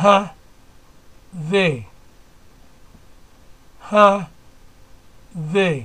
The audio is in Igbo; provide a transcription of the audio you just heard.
ha they ha they